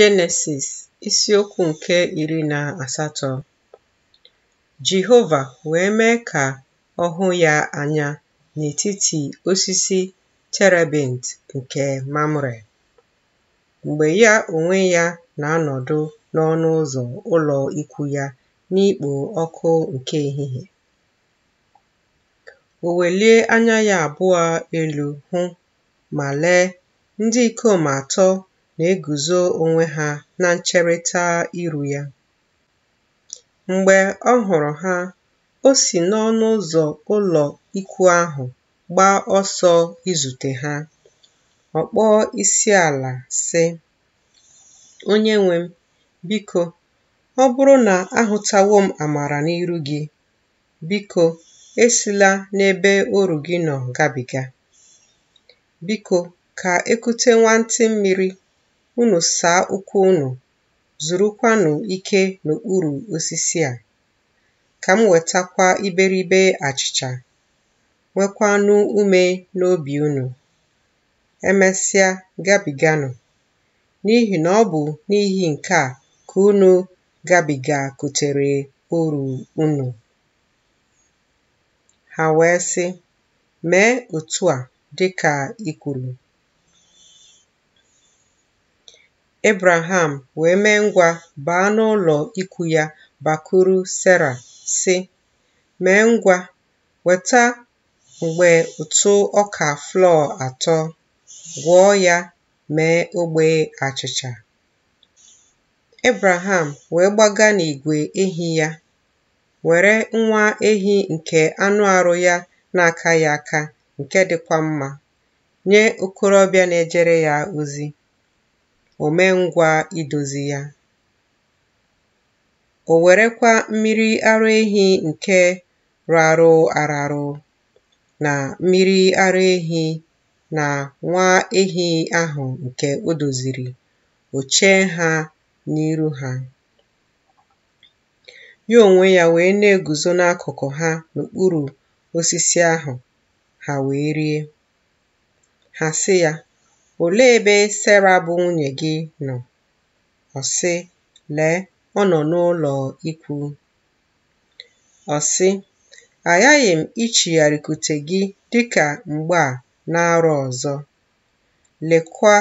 Jenesis isiokwu nke iri na asatọ Jehova wee mee ka ọ hụ ya anya n'etiti osisi terebint nke Mamre, mgbe ya onwe ya na-anọdụ n'ọnụ ụzọ ụlọ ikwu ya n'ikpo ọkụ nke ehihie. O welie anya ya abụọ elu hụ ma lee, ndị ikom atọ na-eguzo onwe ha na ncherịta iru ya. Mgbe ọ hụrụ ha, o si n'ọnụ ụzọ ụlọ ikwu ahụ gbaa ọsọ izute ha. ọkpọọ kpọọ ala, sị, nwe m, biko, ọ bụrụ na ahụtawo m amara n'iru gị, biko esila n'ebe oru gị nọ gabiga. Biko ka ekute nwantị mmiri unu saa ụkwụ unu zurukwanụ ike n'okpuru osisi a ka m wetakwa iberibe achịcha nwekwanụ ume n'obi unu emesịa gabiganụ n'ihi na ọ bụ n'ihi nke a ka unu gabiga kutere oru unu ha wee sị mee otu a dịka i kwuru Ebreham wee mee ngwa baa n'ụlọ ikwu ya bakwuru Sera, sị, “Mee ngwa weta mgbe ụtụ ọka flọọ atọ, gwọọ ya mee ogbe achịcha.” Ebreham wee gbaga n'igwe ehi ya, were nwa ehi nke anụ arụ ya na ya aka nke dịkwa mma nye okorobịa na-ejere ya ozi. o idozi ya. O werekwa mmiri ara ehi nke rarụ ararụ na mmiri ara ehi na nwa ehi ahụ nke o doziri o chee ha n'iru ha. Ya onwe ya wee na-eguzo n'akụkụ ha n'okpuru osisi ahụ ha wee rie. Ha sị ya, Olee ebe Sera bụ nwunye gị nọ? Ọ sị, Lee, ọ nọ n'ụlọ ikwu. Ọ sị, Aghaghị m ichigharịkute gị dịka mgbe a na-arụ ọzọ. Lekwa,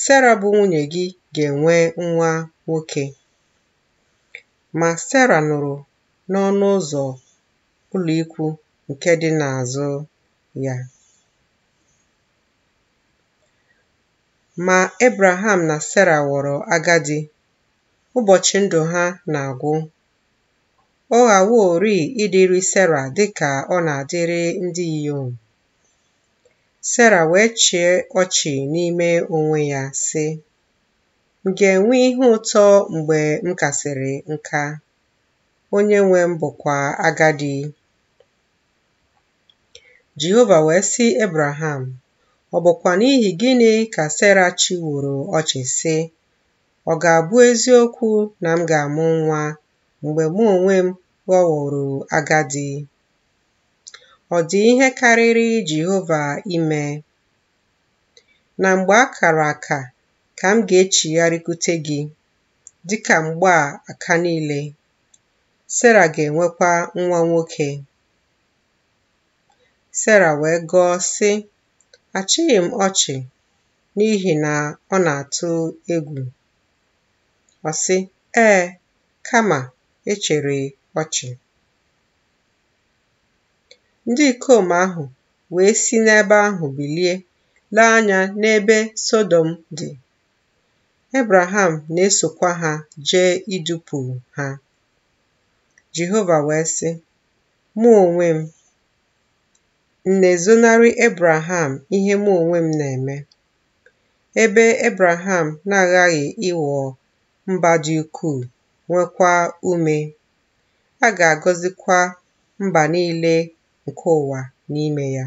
Sera bụ nwunye gị ga-enwe nwa nwoke. Ma Sera nụrụ n'ọnụ ụzọ ụlọ ikwu nke dị n'azụ ya. ma Ebreham na Sera ghọrọ agadi, ụbọchị ndụ ha na-agwụ. Ọ ghaworị ịdịrị Sera dị ka ọ na-adịrị ndị inyom. Sera wee chie ọchị n'ime onwe ya, sị, M ga-enwe ihe ụtọ mgbe m kasịrị nka? Onye nwe m bụkwa agadi. Jehova wee sị Ebreham, Ọ bụkwa n'ihi gịnị ka sara chiworo ọchị sị, “Ọ ga-abụ eziokwu na m ga-amụ nwa mgbe mụ onwe m ghọworo agadi?” Ọ dị ihe karịrị Jehova ime. Na mgbe a kara aka ka m ga echigharịkute gị dịka mgbe a aka niile. sara ga-enwekwa nwa nwoke. sara wee gọọ, sị, Achịghị m ọchị n'ihi na ọ na-atụ egwu. Ọ sị, ee, kama echere ọchị. Ndị ikom ahụ wee si n'ebe ahụ bilie lee anya n'ebe sodom dị. Ebreham na-esokwa ha jee idupụ ha. Jehova wee sị, Mụ onwe m m na-ezonarị ebraham ihe mụ onwe m na-eme, ebe ebraham na-aghaghị ịghọ mba dị ukwuu nwekwa ume. A ga-agọzikwa mba niile nke ụwa n'ime ya.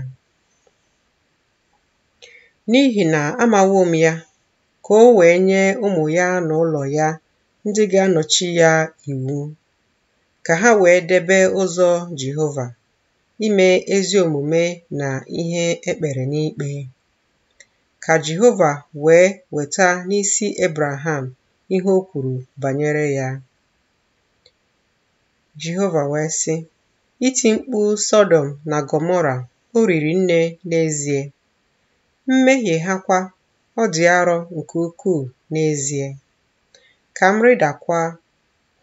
N'ihi na amawo m ya, ka o wee nye ụmụ ya na ụlọ ya ndị ga-anọchi ya iwu, ka ha wee debe ụzọ Jehova ime ezi omume na ihe e kpere n'ikpe. Ka Jehova wee weta n'isi ebraham ihe o kwuru banyere ya. Jehova wee sị: “Iti mkpu sodom na gomora o riri nne n'ezie, mmehie ha kwa ọ dị arọ nke ukwuu n'ezie. Ka m rịdakwa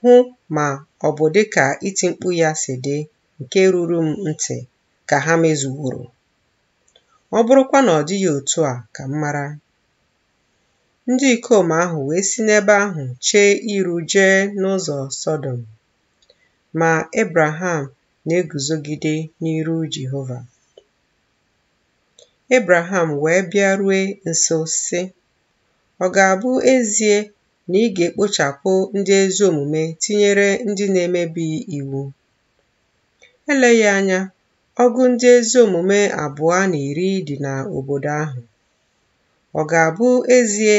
hụ ma ọ bụ dịka iti mkpu ya si dị nke ruru m ntị ka ha mezuworo ọ bụrụkwa na ọ dịghị otu a ka m mara ndị ikom ahụ wee si n'ebe ahụ chee iru jee n'ụzọ Sọdọm ma Ebraham na-eguzogide n'iru Jehova Ebraham wee bịa rue nso si ọ ga-abụ ezie na ị ga-ekpochapụ ndị ezi omume tinyere ndị na-emebi iwu Eleghị anya, ọgụ ndị ezi omume abụọ na iri dị n'obodo ahụ. Ọ ga-abụ ezie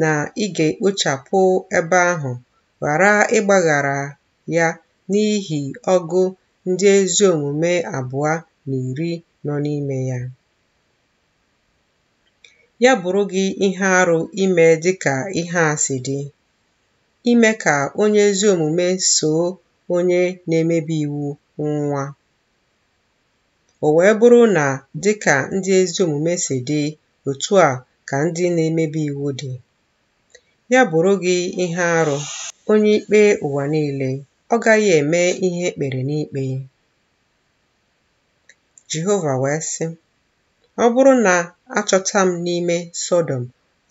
na ị ga-ekpochapụ ebe ahụ ghara ịgbaghara ya n'ihi ọgụ ndị ezi omume abụọ na iri nọ n'ime ya? Ya bụrụ gị ihe arụ ime dịka ihe a si dị, ime ka onye ezi omume soo onye na-emebi iwu nwa o wee bụrụ na dịka ndị ezi omume si dị otu a ka ndị na-emebi iwu dị ya bụrụ gị ihe arụ onye ikpe ụwa niile ọ gaghị eme ihe ekpere n'ikpe Jehova wee sị ọ bụrụ na achọta m n'ime Sọdọm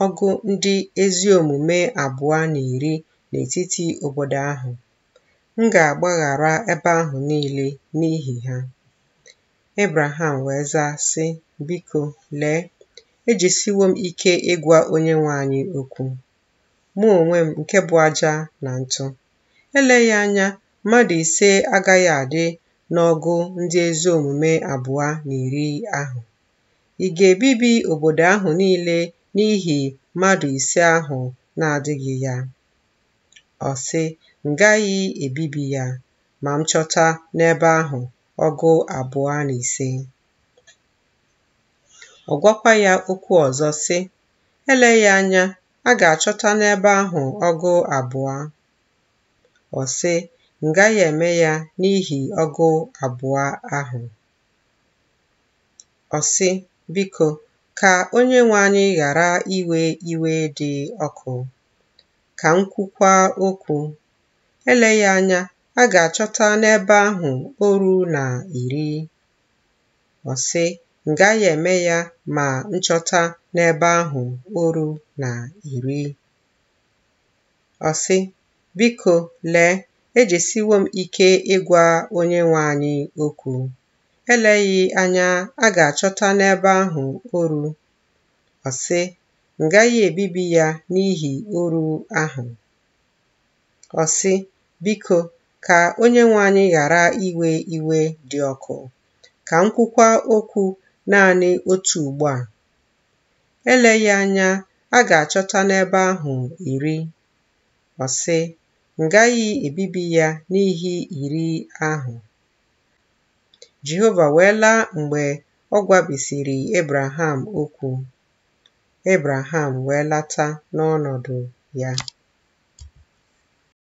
ọgụ ndị ezi omume abụọ na iri n'etiti obodo ahụ M ga-agbaghara ebe ahụ niile n'ihi ha. ebraham wee zaa, sị, Biko, lee, ejisiwo m ike ịgwa onye nwe anyị okwu, mụ onwe m nke bụ aja na ntụ. Eleghị anya mmadụ ise agaghị adị n'ọgụ ndị ezi omume abụọ na iri ahụ. Ị ga-ebibi obodo ahụ niile n'ihi mmadụ ise ahụ na-adịghị ya? Ọ sị, m ebibi ya ma m chọta n'ebe ahụ ọgụ abụọ na ise ọ gwakwa ya okwu ọzọ sị ya anya a ga-achọta n'ebe ahụ ọgụ abụọ ọ sị m eme ya n'ihi ọgụ abụọ ahụ ọ sị biko ka onye nwe anyị ghara iwe iwe dị ọkụ ka m kwukwa okwu Eleghị anya, a ga-achọta n'ebe ahụ oru na iri. Ọsị: Ngaghị m eme ya ma nchọta n'ebe ahụ oru na iri. Ọsị: biko lee, ejesiwo m ike ịgwa Onyenwe anyị okwu. Eleghị anya, a ga-achọta n'ebe ahụ oru. Ọsị: Ngaghị m ebibi ya n'ihi oru ahụ. Biko, ka Onyenwe anyị ghara iwe iwe dị ọkụ. Ka m okwu naanị otu ugbu a. Eleghị anya a ga-achọta n'ebe ahụ iri. ọsị ngaghị ebibi ya n'ihi iri ahụ.” Jehova wee laa mgbe ọ gwabisiri Ebraham okwu. Ebraham wee lata n'ọnọdụ ya.